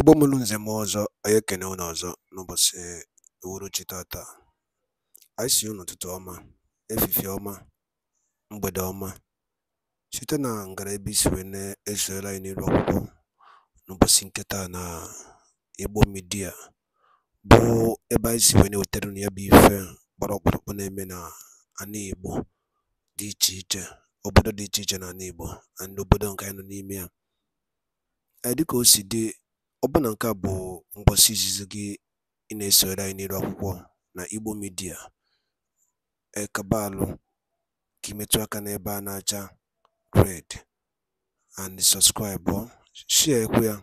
Igbo mụrụ nze m ọzọ, anyị ekene unu ọzọ n'ụbọchị uhuruchi tata. Anyị sị unu ụtụtụ ọma, efifie ọma, mgbede ọma, site na ngara ebe isi wee na-esoyere anyị n'iru akwụkwọ n'ụbọchị nketa na Igbo midia bụ ebe anyị si wee na-ewetara unu ya bụ ife gbara ọkpụrụkpụ na-eme na ana Igbo dị iche iche, obodo dị iche iche na ana Igbo na obodo nke anyị nọ n'ime ya. Dịka o si dị Ọbụna nke a bụ ngwụsị izizi gị ị na-esogharị anyị n'elu akwụkwọ na Igbo midia Ekabaalụ ka ị metụ aka n'ebe a na-acha red and sọpskraịbụ, shịakwa ya,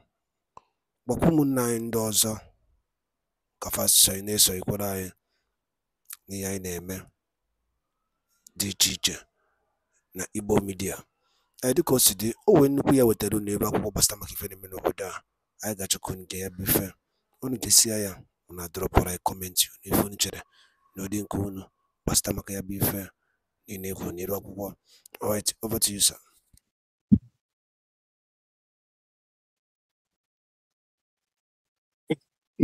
gwakwa ụmụnna anyị ndị ọzọ ka fa sonyere na-esonyekwara anyị n'ihe anyị na-eme dị iche iche na Igbo midia Ee, dịka o si dị, o nwee nnukwu ya wetara unu ebe akwụkwọ gbasara maka ife na-eme n'obodo a. anyị gachakwuru nke ya bụ ifem, unu desịa ya drop adọrọpụrụ anyị comment unu ife unu chere na ụdị nke unu gbasata maka ya bụ ifem niile ekwuru n'elu akwụkwọ. Alright, over to you sir.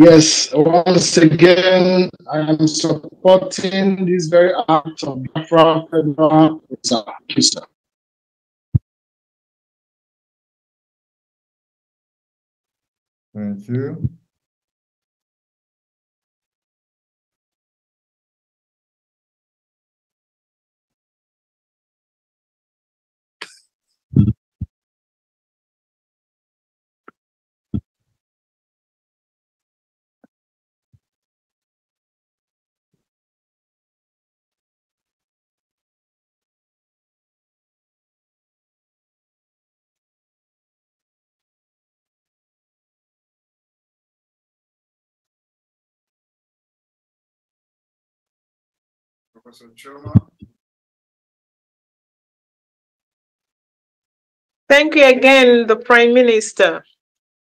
Yes, once again, I am supporting this very act of Biafra Federal Reserve. Thank you. Professor Choma. Thank you again, the Prime Minister.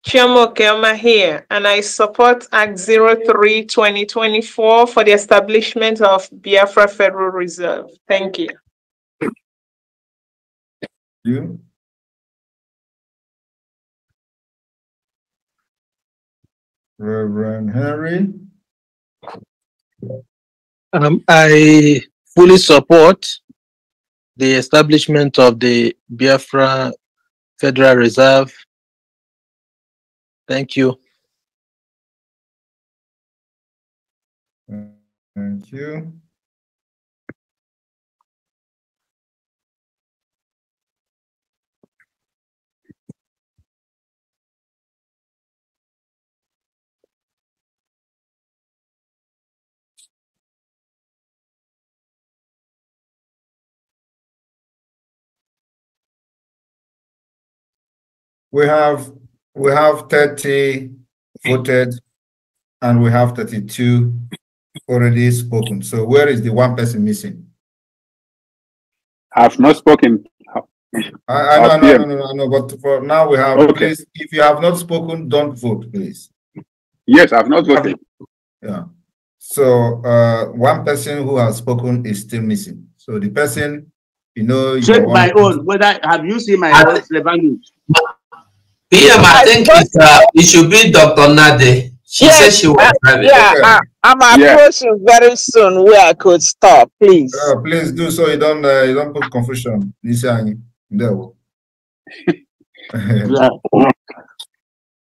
Chiamo Kelma here, and I support Act 03 2024 for the establishment of Biafra Federal Reserve. Thank you. Thank you. Reverend Henry. Um, I fully support the establishment of the Biafra Federal Reserve. Thank you. Thank you. we have we have 30 voted and we have 32 already spoken. So where is the one person missing? I've not spoken. I, I know, I know. but for now we have, okay. please, if you have not spoken, don't vote, please. Yes, I've not voted. Yeah. So uh, one person who has spoken is still missing. So the person, you know, check my own. Whether have you seen my ah. own PM, I think uh, it should be Dr. Nade. She yes, said she was uh, driving. Yeah, yeah. Uh, I, am yeah. approaching very soon where I could stop, please. Uh, please do so you don't uh, you don't put confusion. No.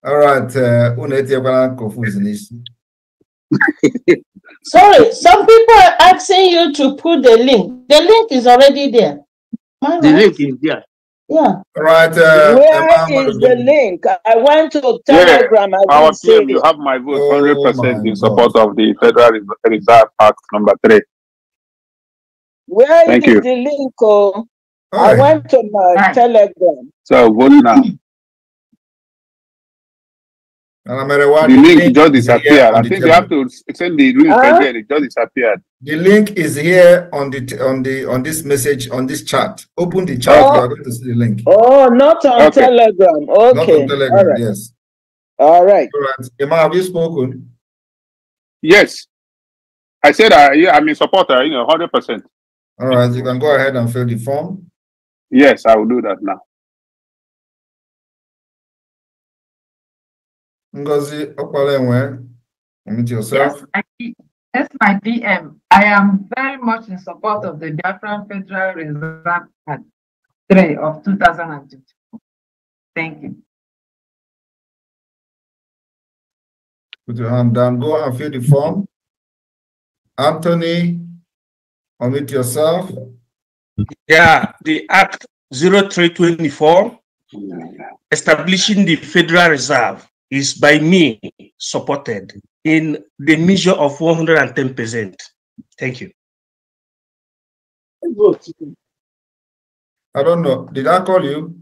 All right, uh, Sorry, some people are asking you to put the link. The link is already there. the right? link is there. Yeah. Right. Uh, Where is the link? I went to Telegram. Yeah. Our PM, you have my vote, oh hundred percent in support of the Federal Reserve Act number three. Where Thank is you. the link? Oh, I went to my Hi. Telegram. So vote now. And no matter what, the link, link just disappeared. I think you have to send the link huh? again. It just disappeared. The link is here on the on the on this message on this chat. Open the chat. Oh. You are going to see the link. Oh, not on okay. Telegram. Okay. Not on Telegram. All right. Yes. All right. All right. Emma, have you spoken? Yes. I said I yeah, I'm a supporter. You know, hundred percent. All right. You can go ahead and fill the form. Yes, I will do that now. Ngozi Okwalewe, unmute yourself. Yes, that's my DM. I am very much in support of the Biafran Federal Reserve Act 3 of 2022. Thank you. Put your hand down. Go and fill the form. Anthony, unmute yourself. Yeah, the Act 0324 establishing the Federal Reserve is by me supported in the measure of 110%. Thank you. I don't know. Did I call you?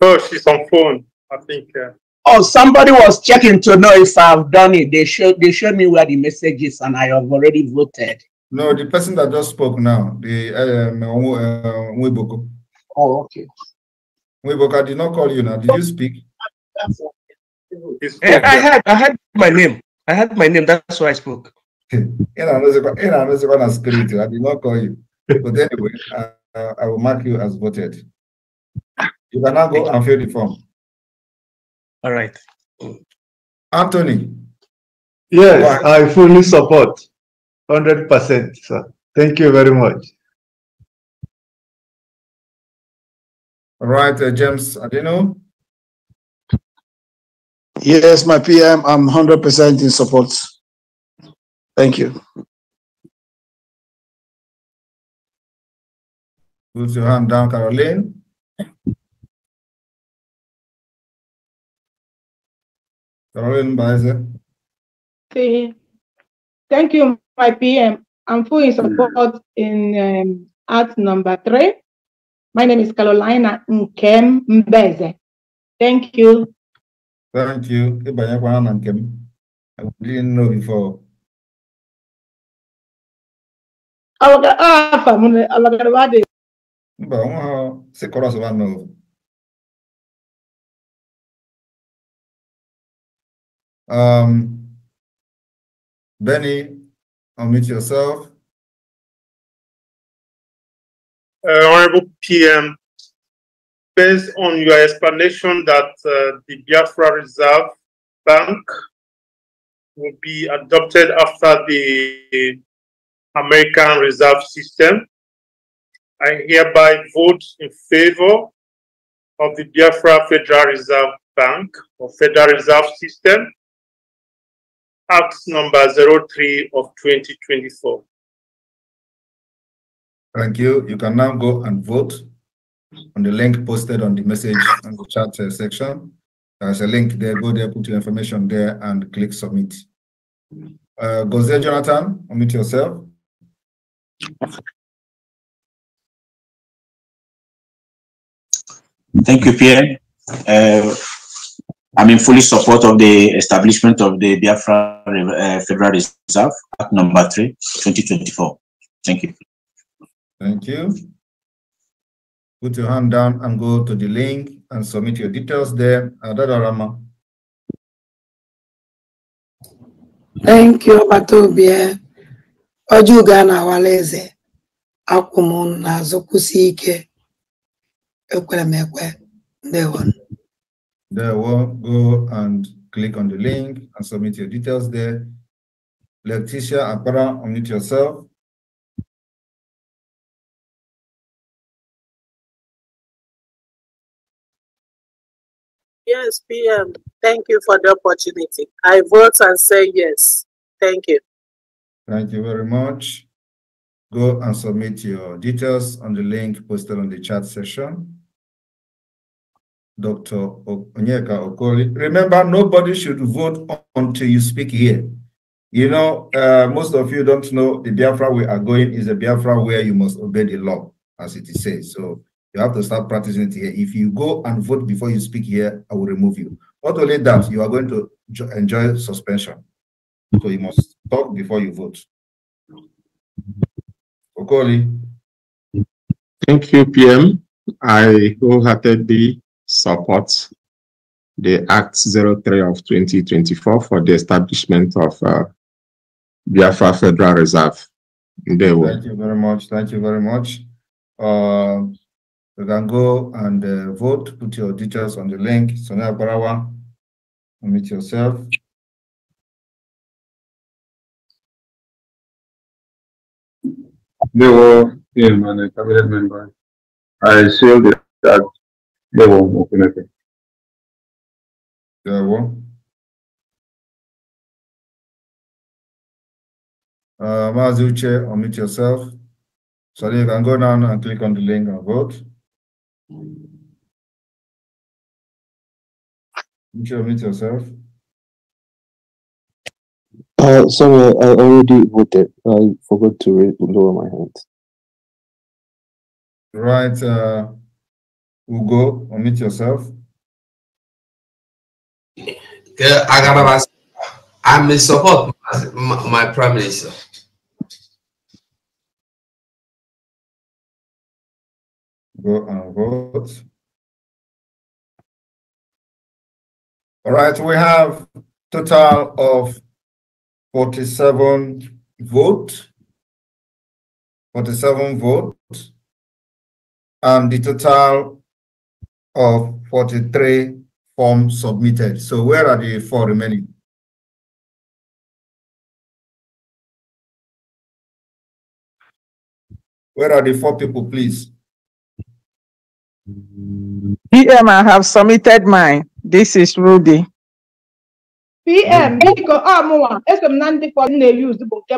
Oh, she's on phone, I think. Uh... Oh, somebody was checking to know if I've done it. They showed they showed me where the message is, and I have already voted. No, the person that just spoke now, the um, uh, Mwiboko. Uh, oh, okay. Mwiboko, I did not call you now. Did you speak? I eh, had I had my name. I had my name. That's why I spoke. in another one as you, I did not call you. But anyway, I, uh, I will mark you as voted. You can now go and fill the form. All right. Anthony. Yes, I fully support. 100%, sir. Thank you very much. All right, uh, James Adeno. Yes, my PM, I'm 100% in support. Thank you. Put your hand down, Caroline. Caroline Baeza. Thank you, my PM. I'm fully in support in um, number three. My name is Carolina Nkem Mbeze. Thank you. Thank you. Ịbanyekwana na nke m. I didn't know before. m Mba, nwa ha si kọrọs ba nọ. Um, Benny, unmute yourself. Uh, Honorable PM, based on your explanation that uh, the Biafra Reserve Bank will be adopted after the American Reserve System, I hereby vote in favor of the Biafra Federal Reserve Bank or Federal Reserve System, Act number 03 of 2024. Thank you. You can now go and vote on the link posted on the message and the chat uh, section. There's a link there. Go there, put your information there, and click submit. Uh, there, Jonathan, unmute yourself. Thank you, Pierre. Uh, I'm in fully support of the establishment of the Biafra uh, Federal Reserve Act number 3, 2024. Thank you. Thank you put your hand down and go to the link and submit your details there. Adarama. Thank you, Batobia. Ojuga na waleze. Akumun na zokusike ike. Ekwere There one. There one. Go and click on the link and submit your details there. Leticia Apara, unmute yourself. Yes, PM. Thank you for the opportunity. I vote and say yes. Thank you. Thank you very much. Go and submit your details on the link posted on the chat session. Dr. Onyeka Okoli. Remember, nobody should vote until you speak here. You know, uh, most of you don't know the Biafra we are going is a Biafra where you must obey the law, as it is said. So you have to start practicing it here. If you go and vote before you speak here, I will remove you. Not only that, you are going to enjoy suspension. So you must talk before you vote. Okoli. Thank you, PM. I wholeheartedly support the Act 03 of 2024 for the establishment of uh, Biafra Federal Reserve. Thank you very much. Thank you very much. Uh, you can go and uh, vote, put your details on the link. Sonia Barawa, unmute yourself. They were him and a cabinet member. I sealed it that they won't open it. They won't. Uh, Mazuche, unmute yourself. So you can go down and click on the link and vote. Did you unmute yourself? Uh, sorry, I already voted. I forgot to lower my hand. Right, uh, Ugo, unmute yourself. I, I, am in support, my, my prime minister. go and vote. All right, we have total of 47 vote, 47 vote, and the total of 43 forms submitted. So where are the four remaining? Where are the four people, please? PM, I have submitted mine. This is Rudy. PM, biko mm. ah,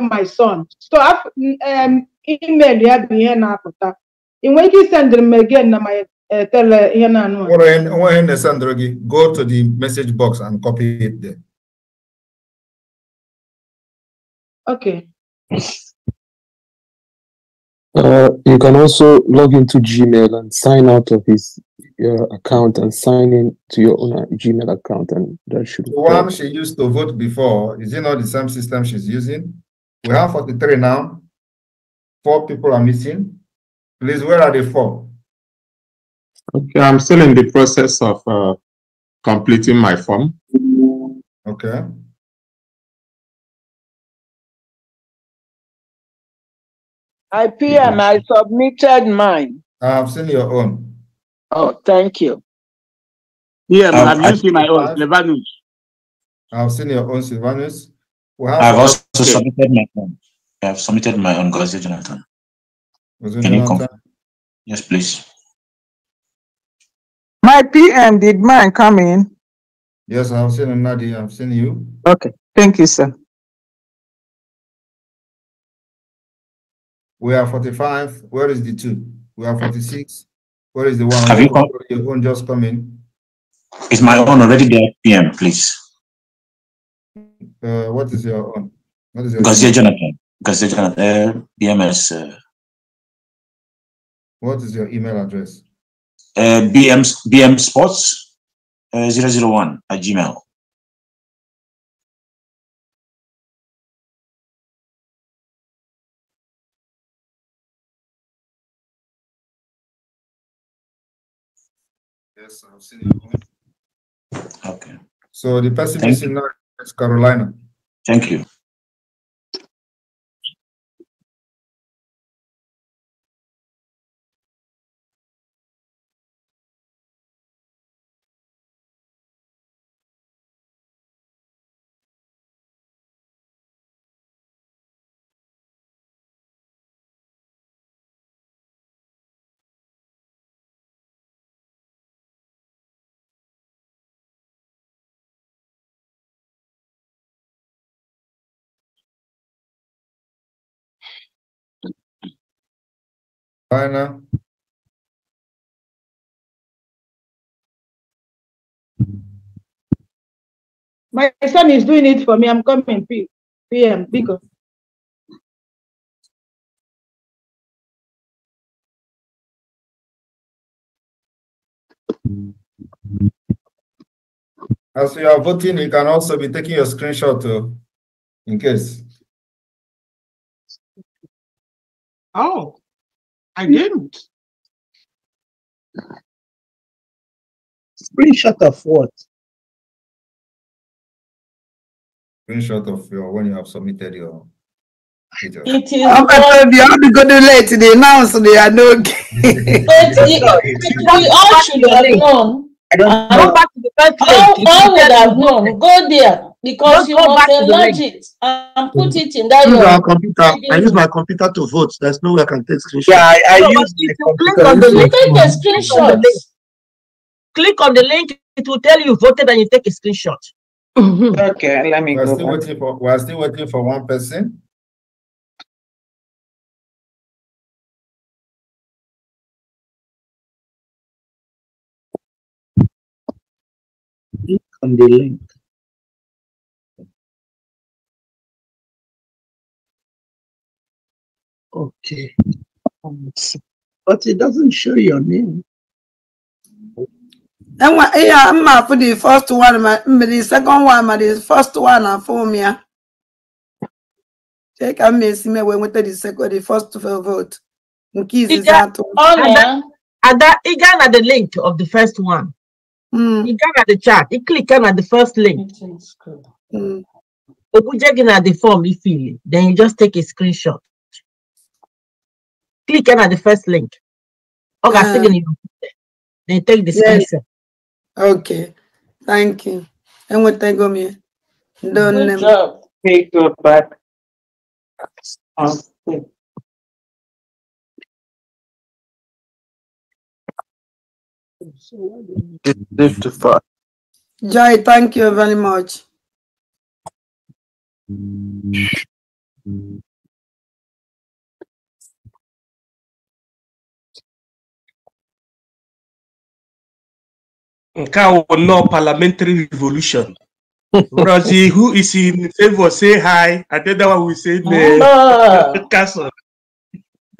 my son so um, email ya bụ ihe na-apụta ị nwere again na my uh, tele uh, go to the message box and copy it there. Okay. Uh, you can also log into Gmail and sign out of his uh, account and sign in to your own uh, Gmail account, and that should. The one she used to vote before is it not the same system she's using? We have 43 now. Four people are missing. Please, where are the four? Okay, I'm still in the process of uh, completing my form. Okay. I PM, I submitted mine. I've seen your own. Oh, thank you. Yeah, um, I've, i seen my own, Silvanus. I've seen your own, Silvanus. Well, I've also okay. submitted my own. I've submitted my own, Gazi Jonathan. Can you come? Yes, please. My PM, did mine come in? Yes, I've seen Nadi. I've seen you. Okay. Thank you, sir. We are 45. Where is the two? We are 46. Where is the one? Have you come? Your own just come in. Is my own already there, PM, please? Uh, what is your own? What is your Gazier Jonathan. Gazier Jonathan, uh, BMS. Uh, what is your email address? Uh, BM, BM Sports uh, 001 at Gmail. Yes, I've seen it. Okay. So the person is in North Carolina. Thank you. Bye now. My son is doing it for me. I'm coming PM because. As you are voting, you can also be taking your screenshot too, uh, in case. Oh. I didn't. Screenshot of what? Screenshot of your when you have submitted your. It is. I'm going to go to late today. Now, so they are no. but we all should have known. I don't know. All, all oh, would have known. Go there because you not you must enlarge it and put mm. it in that. Use your, computer. I use my computer to vote. There's no way I can take screenshots. Yeah, I, I so use the computer. On the link, take a screenshot. Click on the link. It will tell you voted, and you take a screenshot. okay, let me we're go. Still waiting for, we're still waiting for one person. Click on the link. Okay. Um, but it doesn't show your name. yeah, I'm for the first one, mm, but the second one, but the first one and uh, for me. Uh, take a me me when we take the second, the first vote. Nkizi and that he got at the link of the first one. Mm. He got at the chat. He click on the first link. Mm. Okujegi na the form he fill Then you just take a screenshot click on the first link. Okay, uh, second you then take the yes. Okay, thank you. And what thank go me? Don't Good job. Take your back. Jai, thank you very much. nke a nnọọ parliamentary revolution Rosie, who is in favor, say hi. And then that one will say the ah. castle.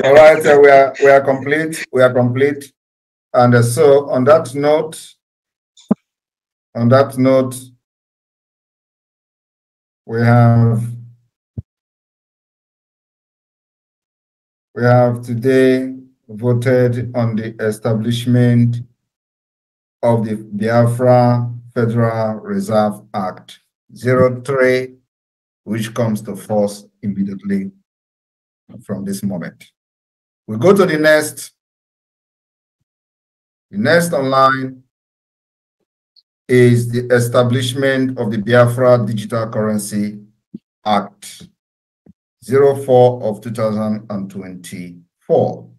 All right, so we are we are complete. We are complete. And uh, so on that note, on that note, we have we have today voted on the establishment of the Biafra Federal Reserve Act 03, which comes to force immediately from this moment. We go to the next. The next online is the establishment of the Biafra Digital Currency Act 04 of 2024.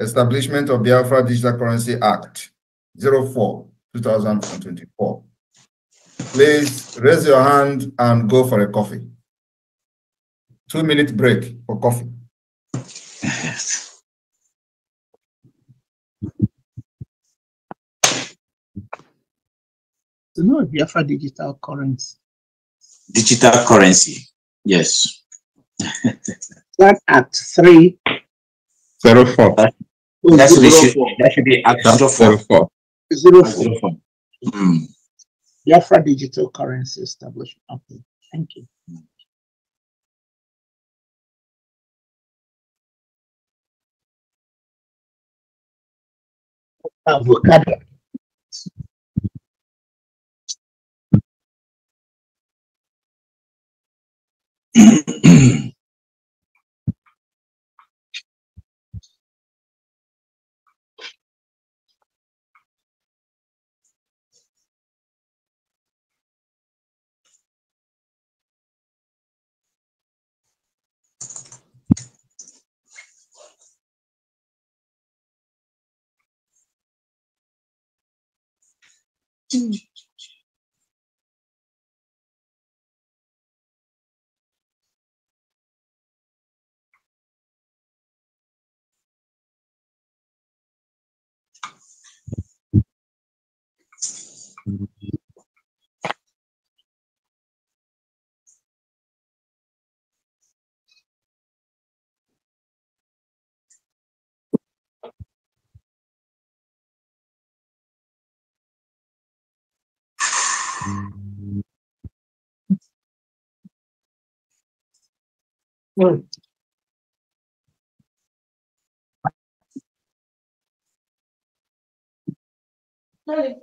Establishment of Biafra Digital Currency Act 04 2024. Please raise your hand and go for a coffee. Two minute break for coffee. Yes. So no Biafra digital currency. Digital currency, yes. That at three. Zero four. Oh, That's zero should, four. that should be at zero four. four. Zero four. Zero four. Mm. Biafra Digital Currency Establishment. Okay, thank you. Avocado. 嗯。うん。はい。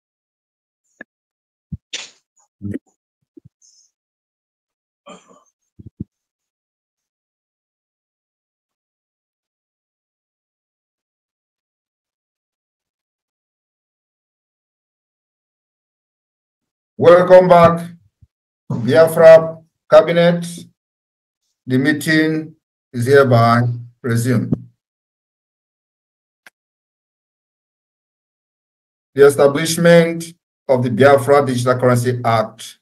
Welcome back, Biafra Cabinet. The meeting is hereby resumed. The establishment of the Biafra Digital Currency Act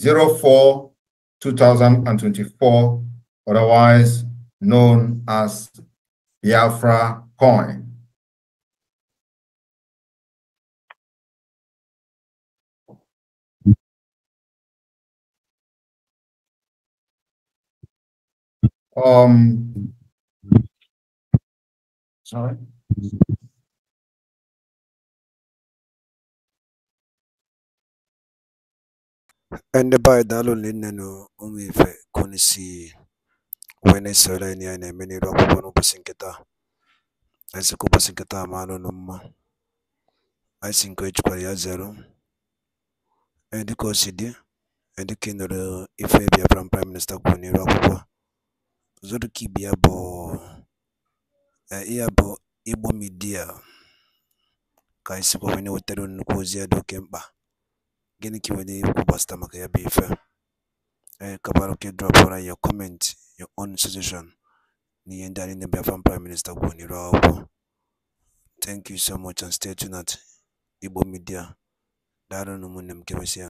04 2024, otherwise known as Biafra Coin Um, sorry. Ndị be anyị daalụ nne na ife konisi wee na na akwụkwọ n'ụbọchị nkịta a sị ka ụbọchị nkịta mma ya zero dịka si dị dịka ị nụrụ ife Biafran Prime Minister kwuru n'iru akwụkwọ Zurkibya bụ ihe a Media kà ànyị sịkwa wee na-ewètere unu nnukwu ozi a dị oke mkpà gịnị ka ị nwere ikwu gbasata maka ya eh, your comment your own suggestion n'ihe ndị anyị na Biafran Prime Minister kwuo n'iru akwụkwọ thank you so much and stay tuned at Igbo Media Daro ụmụnne m kemesịa